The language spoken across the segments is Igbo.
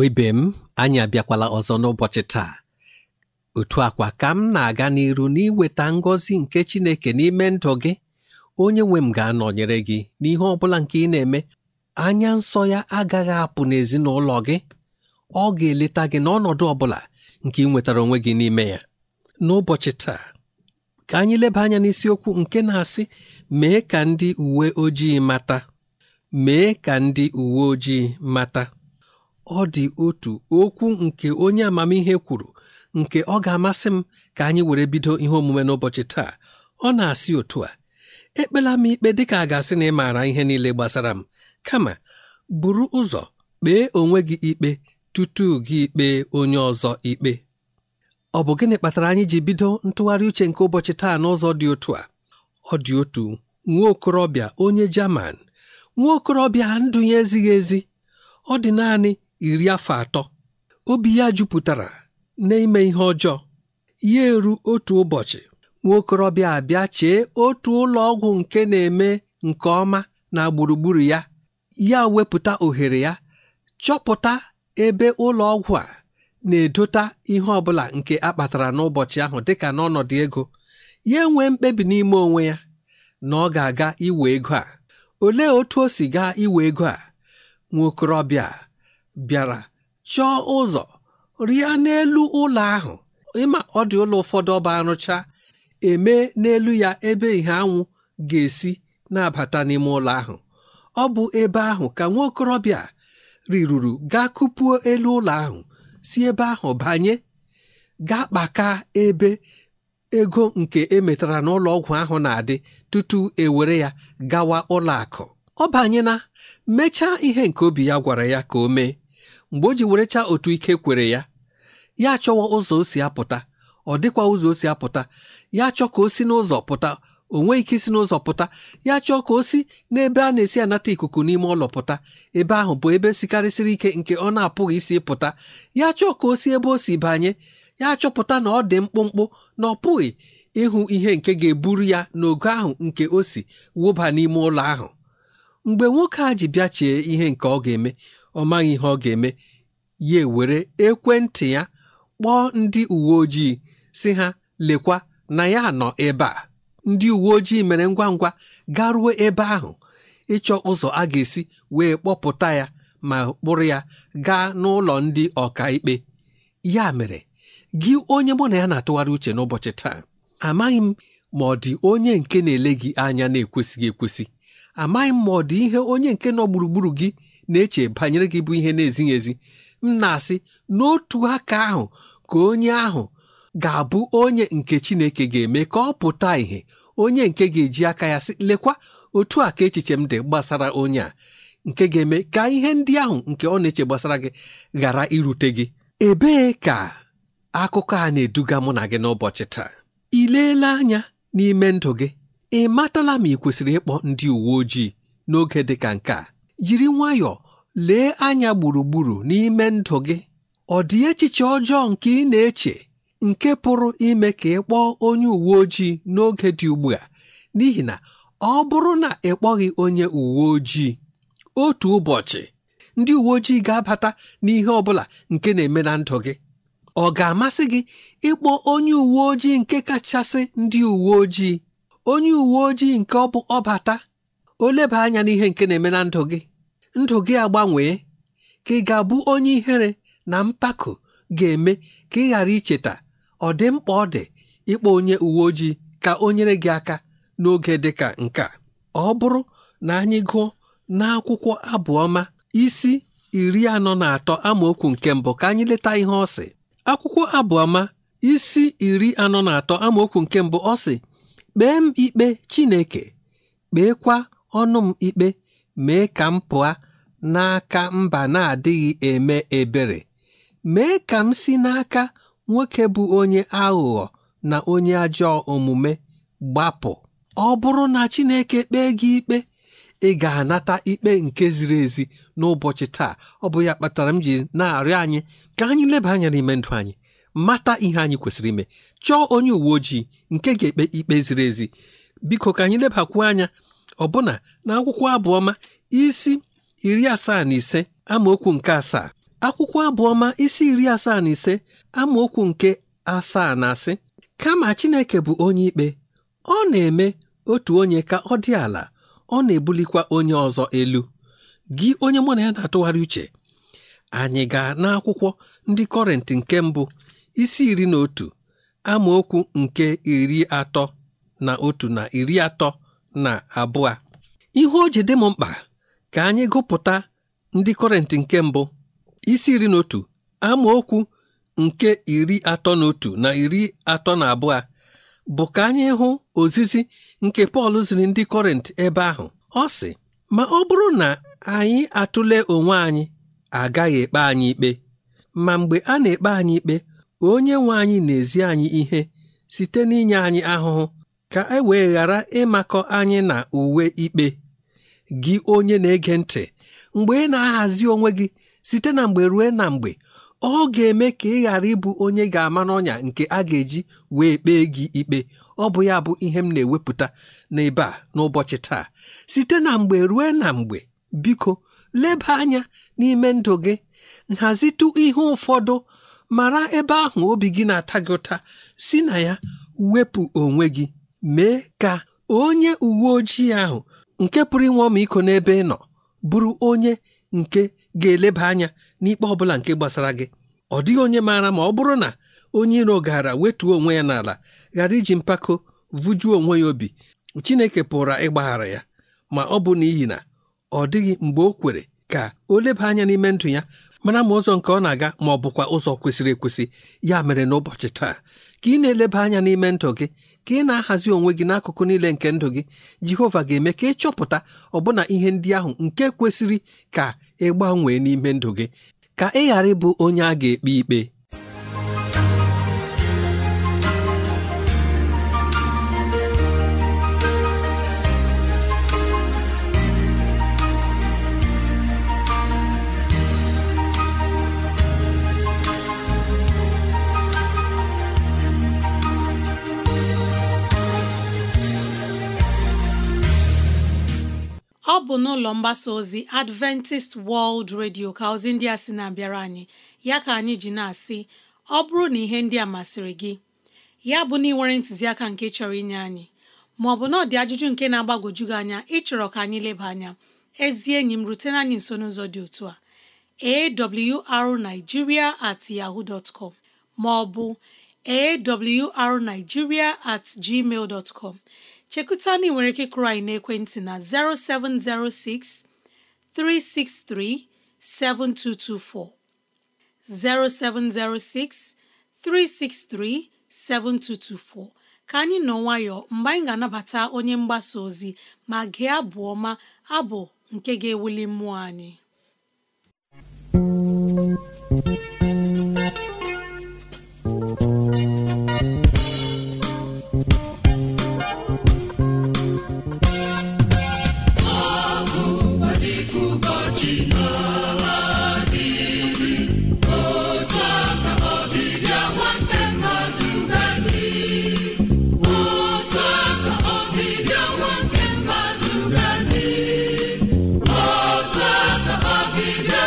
Igbo ibe m anyị abịakwala ọzọ n'ụbọchị taa otu akwa ka m na-aga n'iru n'iweta ngọzi nke Chineke n'ime ndụ gị onye nwe m ga-anọnyere gị n'ihe ọ bụla nke ị na-eme anya nsọ ya agaghị apụ n'ezinụlọ gị ọ ga-eleta gị n'ọnọdụ ọ bụla nke ị nwetara onwe gị n'ime ya n'ụbọchị taa ka anyị leba anya n'isiokwu nke na-asị mee ka ndị uwe ojii mata mee ka ndị uwe ojii mata ọ dị otu okwu nke onye amamihe kwuru nke ọ ga-amasị m ka anyị were bido ihe omume n'ụbọchị taa ọ na-asị otu a ekpela m ikpe dịka a ga-asị na ị maara ihe niile gbasara m kama buru ụzọ kpee onwe gị ikpe tutu gị ikpe onye ọzọ ikpe ọ bụ gịnị kpatara anyị ji bido ntụgharị uche nke ụbọchị taa n'ụzọ dị otu a ọ dị otu nwa okorobịa onye Jaman nwa okorobịa ndụ ya ezighị ezi ọ dị naanị iri afọ atọ obi ya jupụtara n'ime ihe ọjọọ ya eru otu ụbọchị nwokorobịa abịa chee otu ụlọ ọgwụ nke na-eme nke ọma na gburugburu ya ya wepụta ohere ya chọpụta ebe ụlọ ọgwụ a na-edota ihe ọbụla nke akpatara n'ụbọchị ahụ dịka n'ọnọdụ ego ya enwe mkpebi n'ime onwe ya na ọ ga-aga iwe ego a olee otu o si gaa iwe ego a nwokorobịa. bịara chọọ ụzọ rịa n'elu ụlọ ahụ ịma ọ dị ụlọ ụfọdụ ọba arụcha eme n'elu ya ebe ìhè anwụ ga-esi na-abata n'ime ụlọ ahụ ọ bụ ebe ahụ ka nwa okorobịa riruru gaa kupuo elu ụlọ ahụ si ebe ahụ banye gaa kpaka ebe ego nke emetara n'ụlọ ọgwụ ahụ na-adị tutu ewere ya gawa ụlọ akụ ọ banyena mechaa ihe nke obi ya gwara ya ka o mee mgbe o ji werecha otu ike kwere ya ya achọwa ụzọ o si apụta ọ dịkwa ụzọ o si apụta ya achọ ka o si n'ụzọ pụta o nweghị ike isi n'ụzọ pụta ya chọọ ka o si n'ebe a na-esi anata ikuku n'ime ụlọ pụta ebe ahụ bụ ebe sikarịsịrị ike nke ọ na-apụghị isi pụta ya chọọ ka o si ebe o si banye ya chọpụta na ọ dị mkpụmkpụ na ọ pụghị ịhụ ihe nke ga-eburu ya n'ogo ahụ nke o si wụba n'ime ụlọ ahụ mgbe nwoke a ji bịachie ihe nke ọ ga-eme ọ maghị ihe ọ ga-eme ya ewere ekwentị ya kpọọ ndị uwe ojii si ha lekwa na ya nọ ebe a ndị uwe ojii mere ngwa ngwa garuo ebe ahụ ịchọ ụzọ a ga-esi wee kpọpụta ya ma kpụrụ ya gaa n'ụlọ ndị ọkaikpe ya mere gị onye mụ na ya na-atụgharị uche n'ụbọchị taa amaghị m ma ọ dị onye nke na-ele gị anya na-ekwesịghị ekwesị amaghị m ma ọ dị ihe onye nke nọ gburugburu gị na-eche banyere gị bụ ihe na-ezighị ezi m na-asị n'otu aka ahụ ka onye ahụ ga-abụ onye nke Chineke ga-eme ka ọ pụta ìhè onye nke ga-eji aka ya sị lekwa otu aka echiche m dị gbasara onye a nke ga-eme ka ihe ndị ahụ nke ọ na-eche gbasara gị ghara irute gị ebee ka akụkọ a na-eduga mụ na gị n'ụbọchị taa ị leela anya n'ime ndụ gị ị matala ma ị kwesịrị ịkpọ ndị uwe ojii n'oge dị ka nke a jiri nwayọọ lee anya gburugburu n'ime ndụ gị ọ dị echiche ọjọọ nke ị na-eche nke pụrụ ime ka ị kpọọ onye uwe ojii n'oge dị ugbu a n'ihi na ọ bụrụ na ị kpọghị onye uwe ojii otu ụbọchị ndị uwe ojii ga-abata n'ihe ọ bụla nke na-eme na ndụ gị ọ ga-amasị gị ịkpọ onye uwe ojii nke kachasị ndị uwe ojii onye uwe ojii nke ọ bụ ọbata o leba anya n'ihe nke na-eme na ndụ gị ndụ gị agbanwee ka ị ga-abụ onye ihere na mpako ga-eme ka ị ghara icheta ọ dị mkpa ọ dị ịkpọ onye uwe ojii ka o nyere gị aka n'oge dị ka nke a ọ bụrụ na anyị gụọ n'akwụkwọ abụọma isi iri anọ na atọ amaokwu nke mbụ ka anyị leta ihe ọ sị akwụkwọ abụọma isi iri anọ na atọ amaokwu nke mbụ ọ sị kpee m ikpe Chineke kpeekwa ọnụ m ikpe mee ka m pụọ n'aka mba na-adịghị eme ebere mee ka m si n'aka nwoke bụ onye aghụghọ na onye ajọ omume gbapụ ọ bụrụ na Chineke kpee gị ikpe ị ga-anata ikpe nke ziri ezi n'ụbọchị taa ọ bụ ya kpatara m ji na-arịọ anyị ka anyị leba anya n'ime ndụ anyị mata ihe anyị kwesịrị ime chọọ onye uwe ojii nke ga-ekpe ikpe ziri ezi biko ka anyị lebakwuo anya ọbụna na akwụkwọ abụọma isi iri asaa na ise amaokwu nke asaa akwụkwọ abụọma isi iri asaa na ise amaokwu nke asaa na asị kama Chineke bụ onye ikpe ọ na-eme otu onye ka ọ dị ala ọ na-ebulikwa onye ọzọ elu gị onye mụ na ya na-atụgharị uche anyị gaa n'akwụkwọ ndị kọrentị nke mbụ isi iri na otu amaokwu nke iri atọ na otu na iri atọ na abụọ ihe o ji dị m mkpa ka anyị gụpụta ndị kọrentị nke mbụ isi iri na otu amaokwu nke iri atọ na otu na iri atọ na abụọ bụ ka anyị hụ ozizi nke Pọl ziri ndị kọrent ebe ahụ ọ sị ma ọ bụrụ na anyị atụle onwe anyị agaghị ekpe anyị ikpe ma mgbe a na-ekpe anyị ikpe Onye nwe anyị na-ezi anyị ihe site n'inye anyị ahụhụ ka e wee ghara ịmakọ anyị na uwe ikpe gị onye na-ege ntị mgbe ị na-ahazi onwe gị site na mgbe ruo na mgbe ọ ga-eme ka ị ghara ịbụ onye ga-ama n'ọnya nke a ga-eji wee kpee gị ikpe ọ bụ ya bụ ihe m na-ewepụta n'ebe a n'ụbọchị taa site na mgbe ruo na mgbe biko leba anya n'ime ndụ gị nhazitụ ihe ụfọdụ mara ebe ahụ obi gị na-ata gị ụta si na ya wepụ onwe gị mee ka onye uwe ojii ahụ nke pụrụ inwe ọmịiko n'ebe ị nọ bụrụ onye nke ga-eleba anya n'ikpe ọ bụla nke gbasara gị ọ dịghị onye maara ma ọ bụrụ na onye iro gara wetuo onwe ya n'ala ghara iji mpako vụjuo onwe ya obi Chineke pụrụ ịgbaghara ya ma ọ bụ n'ihi na ọ dịghị mgbe o kwere ka o leba anya n'ime ndụ ya mara ma ụzọ nke ọ na-aga ma ọ bụkwa ụzọ kwesịrị ekwesị ya mere n'ụbọchị taa ka ị na-eleba anya n'ime ndụ gị ka ị na-ahazi onwe gị n'akụkụ niile nke ndụ gị Jehova ga-eme ka ị chọpụta ọbụna ihe ndị ahụ nke kwesịrị ka ị gbanwee n'ime ndụ gị ka ị ghara ịbụ onye a ga-ekpe ikpe bụ n'ụlọ mgbasa ozi Adventist World Radio ka ozi ndị a sị na-abịara anyị ya ka anyị ji na-asị ọ bụrụ na ihe ndị a masịrị gị ya bụ na ị nwere ntụziaka nke chọrọ inye anyị ma ọ bụ na ajụjụ nke na-agbagwoju gị anya ịchọrọ ka anyị leba anya ezi enyi m rutena anyị nso n'ụzọ dị otu a awrnigeria at yaho com ma ọ bụ at gmail chekụta na ị nwere ike kụrụ anyị n'ekwentị na 0706 363 7224 0706 363 7224 ka anyị nọ nwayọ mgbe anyị ga-anabata onye mgbasa ozi ma gị abụ ọma abụ nke ga-ewuli mmụọ anyị Happy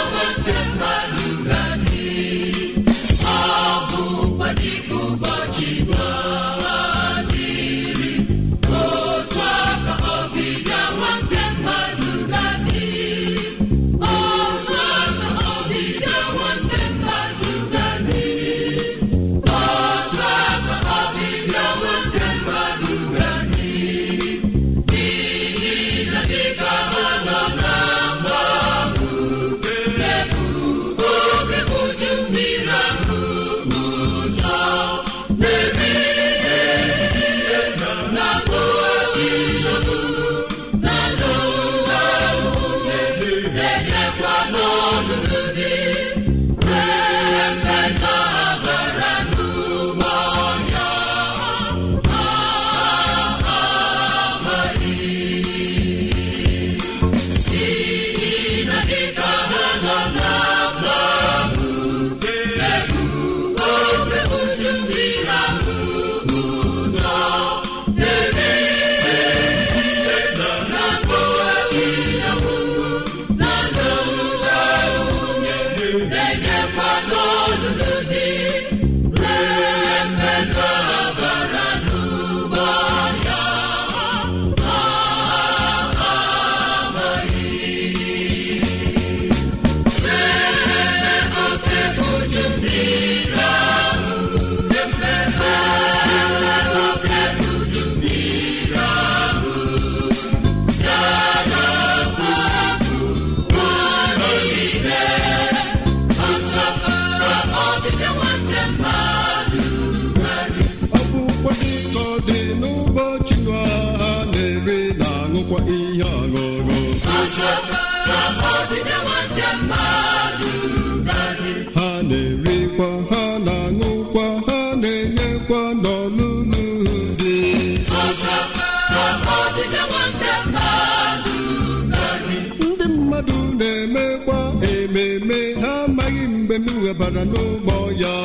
n'ụgbọ ya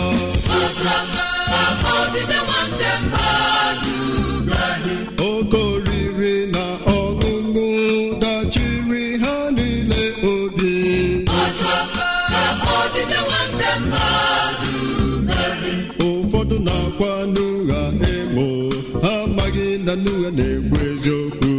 na ọṅụṅụ dachiri ha niile obi ụfọdụ na-akwa n'ụgha ha amaghị na na-ekwu eziokwu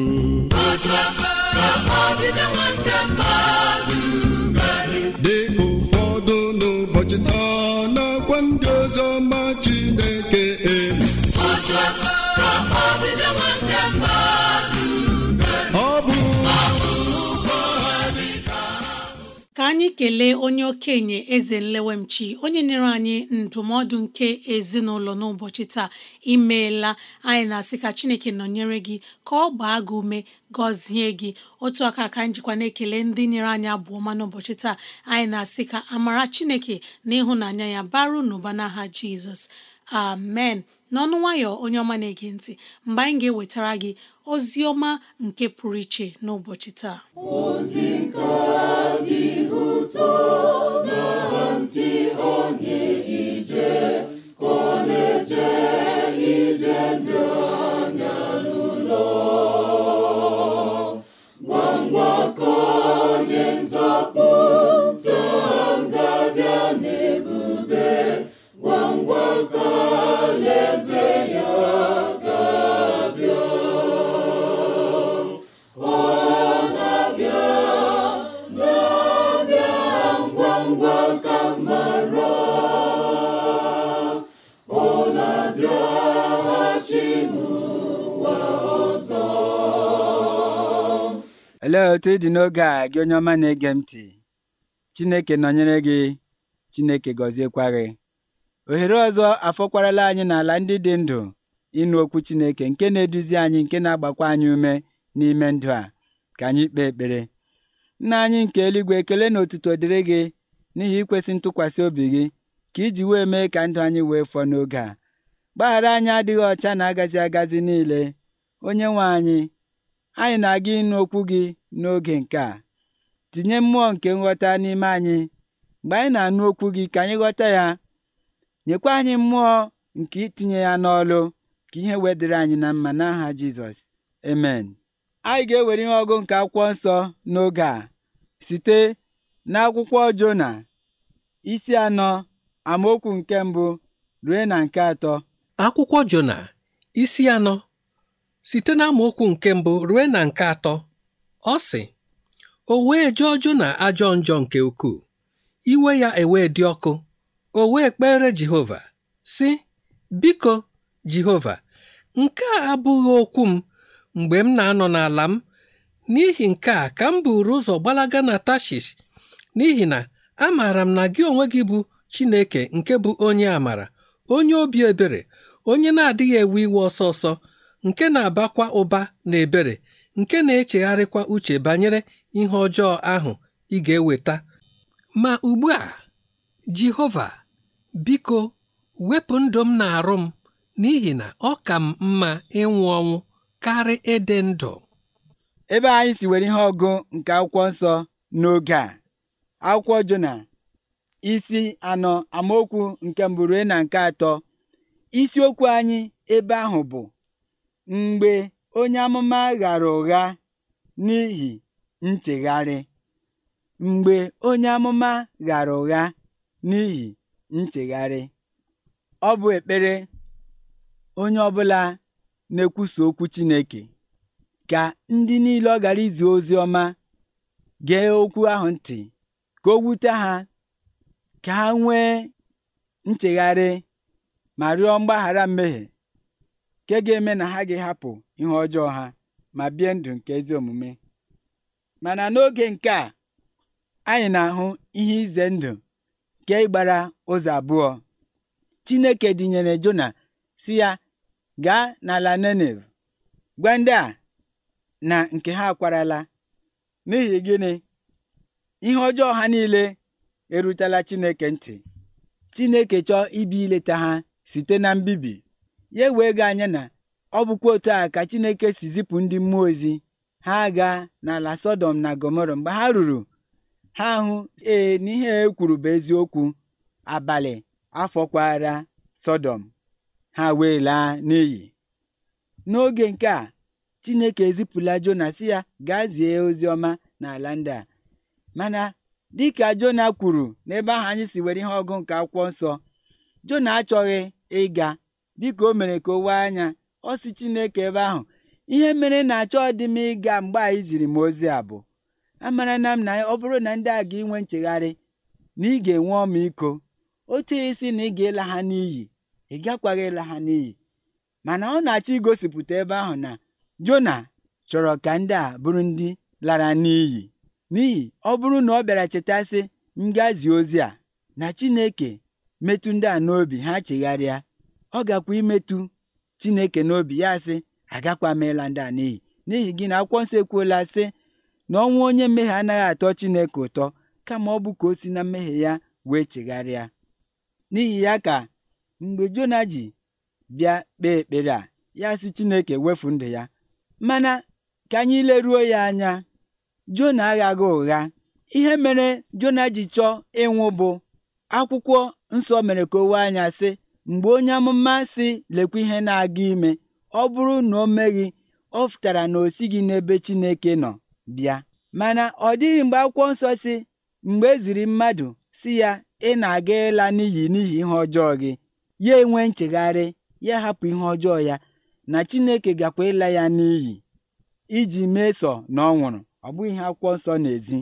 na-ekele onye okenye eze nlewemchi onye nyere anyị ndụmọdụ nke ezinụlọ n'ụbọchị taa imeela anyị na-asị ka chineke nọnyere gị ka ọ gbaa gị ume gọzie gị otu aka ka njikwa na-ekele ndị nyere anyị abụọ ma n'ụbọchị taa anyị na-asị ka amara chineke na ịhụnanya ya baru n'ụba n'aha jizọs amen n'ọnụ nwayọ onye ọma na-ege ntị mgbe anyị ga-ewetara gị ozi ọma nke pụrụ iche n'ụbọchị taa ozi nke otu ịdị n'oge a gị onye ọma na-ege m ntị Chineke nọnyere gị Chineke gọziekwa gị ohere ọzọ afọkwarala anyị n'ala ndị dị ndụ ịnụ okwu Chineke nke na-eduzi anyị nke na-agbakwa anyị ume n'ime ndụ a ka anyị kpee ekpere nna anyị nke eluigwe ekele na otuto dịrị gị n'ihi ikwesị ntụkwasị obi gị ka iji wee mee ka ndụ anyị wee fọọ n'oge a gbaghara anyị adịghị ọcha na agazi agazi niile onye nwe anyị anyị na-aga ịnụ okwu gị n'oge nke a tinye mmụọ nke nghọta n'ime anyị mgbe anyị na-anụ okwu gị ka anyị ghọta ya nyekwa anyị mmụọ nke itinye ya n'ọlụ ka ihe wedịrị anyị na mma n'aha Jizọs amen anyị ga-ewere ihe ọgụ nke akwụkwọ nsọ n'oge a site n'akwụkwọ Jona isi anọ amaokwu nke mbụ rue na nke atọ akwụkwọ Jona isi anọ site n'amaokwu nke mbụ rue na nke atọ Ọ sị, “O wee jọọ na ajọ njọ nke ukwuu, iwe ya ewee dị ọkụ, o wee kpere Jehova, Si: Biko, Jehova, nke a abụghị okwu m mgbe m na-anọ n'ala m, n'ihi nke a ka m buru ụzọ gbalaga na Tashish, n'ihi na amaara m na gị onwe gị bụ Chineke nke bụ onye amara, onye obi ebere, onye na-adịghị ewe iwe ọsọ ọsọ, nke na-abakwa ụba na ebere nke na-echegharịkwa uche banyere ihe ọjọọ ahụ ị ga-eweta. Ma ugbu a, Jehova, biko wepụ ndụ m na-arụ m n'ihi na ọ ka m mma ịnwụ ọnwụ karị ịdị ndụ. Ebe anyị si were ihe ọgụ nke akwụkwọ nsọ n'oge a, akwụkwọ Jona isi anọ amaokwu nke mbụrue na nke atọ isiokwu anyị ebe ahụ bụ mgbe onye amụma ghara ụgha n'ihi nchegharị. Mgbe onye amụma ghara ụgha n'ihi nchegharị, ọ bụ ekpere onye ọbụla na-ekwusa okwu Chineke ka ndị niile ọ gara izi ozi ọma gee okwu ahụ ntị ka o wute ha ka ha nwee nchegharị ma rịọ mgbaghara mmehie nke ga-eme na ha ga hapụ ihe ọjọọ ha ma bie ndụ nke ezi omume mana n'oge nke a anyị na-ahụ ihe ize ndụ nke ịgbara ụzọ abụọ Chineke dịnyere Jona si ya gaa n'ala Nenev gwa ndị a na nke ha akwarala n'ihi gịnị ihe ọjọọ ha niile erutela Chineke ntị Chineke chọọ ibi ileta ha site na mbibi ya wee ga anya na ọ bụkwa otu a ka Chineke si zipụ ndị mmụọ ozi ha aga n'ala sodom na Gọmọrọ mgbe ha ruru ha hụ ee n'ihe e kwuru bụ eziokwu abalị afọkwara Sodom ha wee laa n'iyi n'oge nke a Chineke ezipụla Jona si ya gaa zie ozi ọma n'ala ndị a mana dịka Jona kwuru n'ebe ahụ anyị si were ihe ọgụ nke akwụkwọ nsọ Jona achọghị ịga dịka o mere ka o wee anya ọ Chineke ebe ahụ ihe mere na achọ dị m ịga mgbe anyị ziri m ozi a bụ amara na m na ọ bụrụ na ndị a ga-inwe nchegharị na ị ga-enwe ọmịiko oche isi na ị ga-ịla ha n'iyi ị gakwaghị ịla ha n'iyi mana ọ na-achọ igosipụta ebe ahụ na Jona chọrọ ka ndị a bụrụ ndị lara n'iyi n'ihi ọ bụrụ na ọ bịara chetasị ngazi ozi a na Chineke metụ ndị a n'obi ha chegharịa ọ gakwa imetụ chineke n'obi ya sị agakwa meela ndị a n'iyi n'ihi gị na akwụkwọ nsọ ekwuola sị na ọnwụ onye mmehie anaghị atọ chineke ụtọ kama ọ bụ ka o si na mmehie ya wee chegharịa n'ihi ya ka mgbe jona ji bịa kpee ekpere a ya sị chineke wefu ndụ ya mana ka anyị leruo ya anya jona aghaghị ụgha ihe mere jona ji chọọ ịnwụ bụ akwụkwọ nsọ mere ka o wee anya sị Mgbe onye amụma sị lekwa ihe na-aga ime, ọ bụrụ na o meghị, ọ pụtara na o sighị n'ebe Chineke nọ bịa. Mana ọ dịghị mgbe akwụkwọ nsọ si mgbe e ziri mmadụ si ya ị na-aga ịla n'iyi n'ihi ihe ọjọọ gị, ya enwe nchegharị, ya hapụ ihe ọjọọ ya na Chineke gakwa ịla ya n'iyi iji mesọ na ọ nwụrụ. Ọ bụghị ihe akwụkwọ nsọ na-ezi.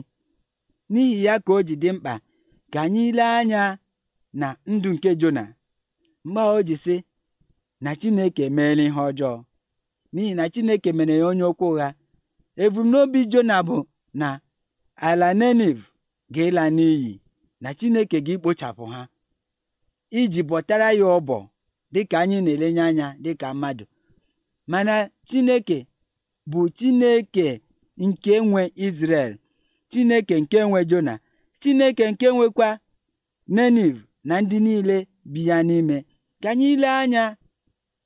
N'ihi ya ka o ji dị mkpa ka anyị lee anya na ndụ nke Jona mgbe ahụ o na Chineke emeela ihe ọjọọ n'ihi na Chineke mere ya onye okwu ụgha ebumnobi Jona bụ na ala neniv ga-ịla n'iyi na Chineke ga ekpochapụ ha iji bọtara ya ọbọ dịka anyị na-elenye anya dịka mmadụ mana Chineke bụ Chineke nke nwe isrel Chineke nke nwe Jona Chineke nke nwekwa neniv na ndị niile bi ya n'ime Ka anyị anya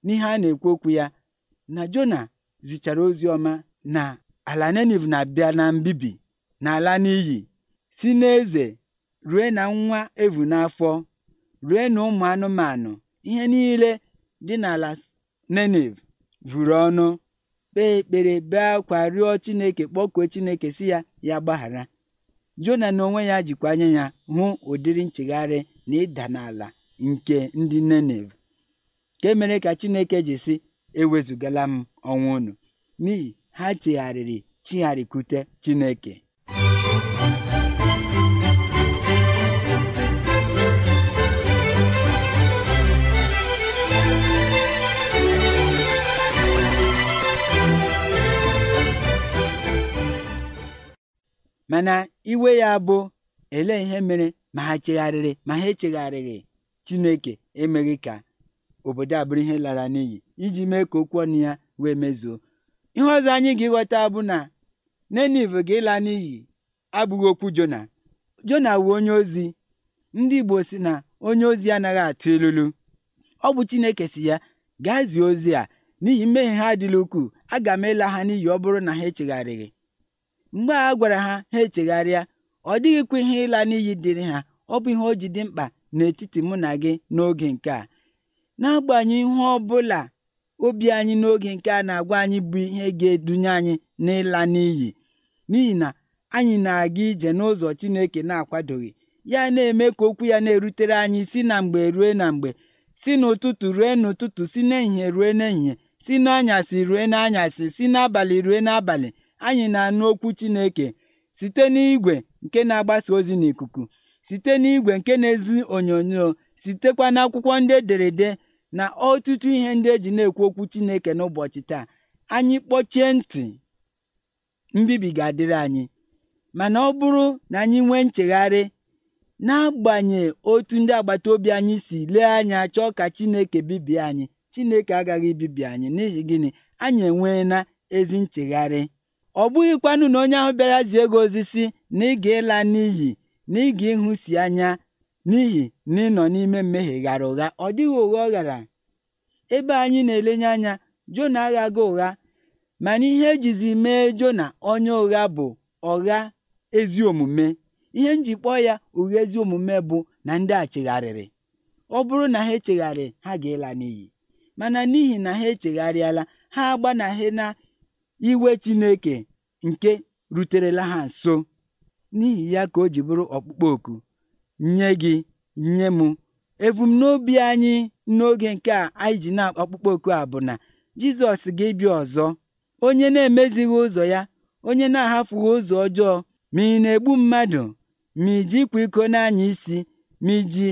n'ihe a na-ekwu okwu ya na Jona zichara ozi ọma na ala neniv na-abịa na mbibi na ala n'iyi si n'eze rue na nwa evu n'afọ rue na ụmụ anụmanụ ihe niile dị n'ala nenev vụrụ ọnụ kpee ekpere bee akwa rịọ Chineke kpọkuo Chineke si ya ya gbaghara Jona na onwe ya jikwa anya ya hụ ụdịrị nchegharị na ịda n'ala nke ndị ka nke mere ka Chineke ji sị ewezugala m ọnwụ unu n'ihi ha chegharịrị chigharịkwute Chineke mana iwe ya bụ ele ihe mere ma ha chegharịrị ma ha echegharịghị Chineke emeghị ka obodo a bụrụ ihe lara n'iyi iji mee ka okwu ọnụ ya wee mezuo ihe ọzọ anyị ga-ịghọta bụ na nenive ga-ịla n'iyi abụghị okwu Jona Jona wu onye ozi ndị Igbo si na onye ozi anaghị atụ ilulu ọ bụ Chineke si ya gaa zie ozi a n'ihi mmehie ha adịla ukwuu aga m ịla ha n'iyi ọ bụrụ na ha echegharịghị mgbe a gwara ha ha echegharịa ọ dịghịkwa ihe ịla n'iyi dịrị ha ọ bụ ihe o ji dị mkpa n'etiti mụ na gị n'oge nke a n'agbanyeghị ihe ọ bụla obi anyị n'oge nke a na-agwa anyị bụ ihe ga-edunye anyị n'ịla n'iyi n'ihi na anyị na-aga ije n'ụzọ Chineke na-akwadoghị ya na-eme ka okwu ya na-erutere anyị si na mgbe rue na mgbe si n'ụtụtụ rue n'ụtụtụ si n'ehihie rue n'ehihie si n'anyasị rue n'anyasị si n'abalị rue n'abalị anyị na-anụ okwu Chineke site n'igwe nke na-agbasa ozi n'ikuku site n'igwè nke na-ezi onyonyo sitekwa n'akwụkwọ ndị ederede na ọtụtụ ihe ndị eji na-ekwu okwu Chineke n'ụbọchị taa anyị kpọchie ntị mbibi ga-adịrị anyị mana ọ bụrụ na anyị nwee nchegharị agbanye otu ndị agbata obi anyị si lee anya chọọ ka Chineke bibie anyị Chineke agaghị ibibi anyị n'ihi gịnị anyị enweela ezi nchegharị ọ bụghịkwanụ na onye ahụ bịara zie gị ozi si na ị ga-ịla n'iyi na ị ga anya n'ihi na ị nọ n'ime mmehie ghara ụgha ọ dịghị ụgha ọ ghara ebe anyị na-elenye anya Jona aghaga ụgha mana ihe ejizi mee Jona onye ụgha bụ ọgha ezi omume ihe njikpọ ya ụgha ezi omume bụ na ndị a chegharịrị ọ bụrụ na ha echegharị ha ga-ịla n'iyi mana n'ihi na ha echegharịala ha agbanaghị na iwe Chineke nke ruterela ha nso n'ihi ya ka o ji bụrụ ọkpụkpọ oku nye gị nye m ebumnobi anyị n'oge nke a anyị ji na ọkpụkpọ oku a bụ na Jizọs ga ebi ọzọ onye na-emezighị ụzọ ya onye na-ahafughị ụzọ ọjọọ ma ị na-egbu mmadụ ma iji ịkwa iko n'anya isi ma iji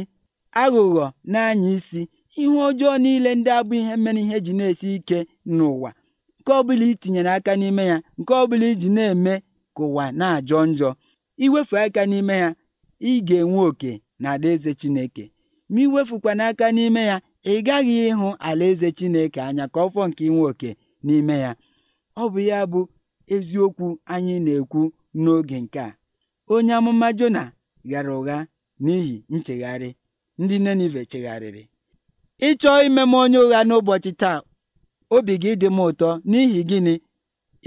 aghụghọ n'anya isi ihe ọjọọ niile ndị abụ ihe mere ihe ji na-esi ike n'ụwa nke ọbụla itinyere aka n'ime ya nke ọbụla iji na-eme ka ụwa na-ajọ njọ iwefu aka n'ime ya ị ga-enwe oke na alaeze Chineke ma iwefukwana aka n'ime ya ị gaghị ịhụ ala eze Chineke anya ka ọ nke inwe oke n'ime ya ọ bụ ya bụ eziokwu anyị na-ekwu n'oge nke a onye amụma Jona ghara ụgha n'ihi nchegharị ndị Nenive chegharịrị ịchọọ ime m onye ụgha n'ụbọchị taa obi gị dị m ụtọ n'ihi gịnị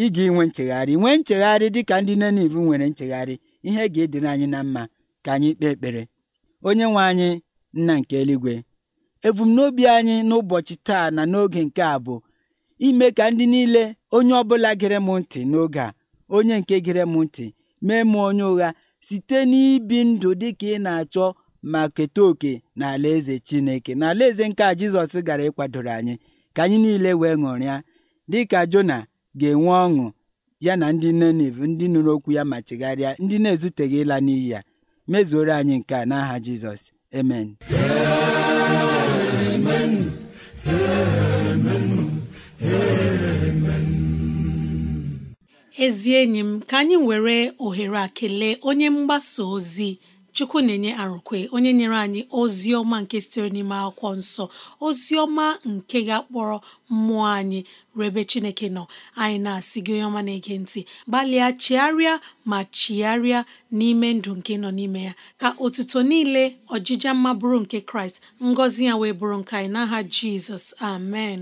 ị ga-enwe nchegharị nwee nchegharị dịka ndị Nenive nwere nchegharị ihe ga-edere anyị na mma ka anyị kpee ekpere onye nwe anyị nna nke eluigwe ebumnobi anyị n'ụbọchị taa na n'oge nke a bụ ime ka ndị niile onye ọbụla gere m ntị n'oge a onye nke gere m ntị mee m onye ụgha site n'ibi ndụ dị ka ị na-achọ ma keta oke na alaeze chineke na alaeze nke a jizọs gara ịkwadoro anyị ka anyị niile wee ṅụrịa dị ka jona ga-enwe ọṅụ ya na ndị Ninive ndị nụrụ okwu ya ma chegharịa ndị na-ezuteghị ịla n'iyi ya mezuoro anyị nke a n'aha Jizọs amen ezi enyi m ka anyị were ohere akele onye mgbasa ozi chukwu na-enye arụkwe onye nyere anyị ozi ọma nke sitere n'ime akwụkwọ nsọ ozi ọma nke ga-akpọrọ mmụọ anyị rebe chineke nọ anyị na-asị gị onye ọma na-ege ntị gbalịa chigharịa ma chigharịa n'ime ndụ nke nọ n'ime ya ka otuto niile ọjịja mma bụrụ nke kraịst ngọzi ya wee bụrụ nke anyị n'aha jizọs amen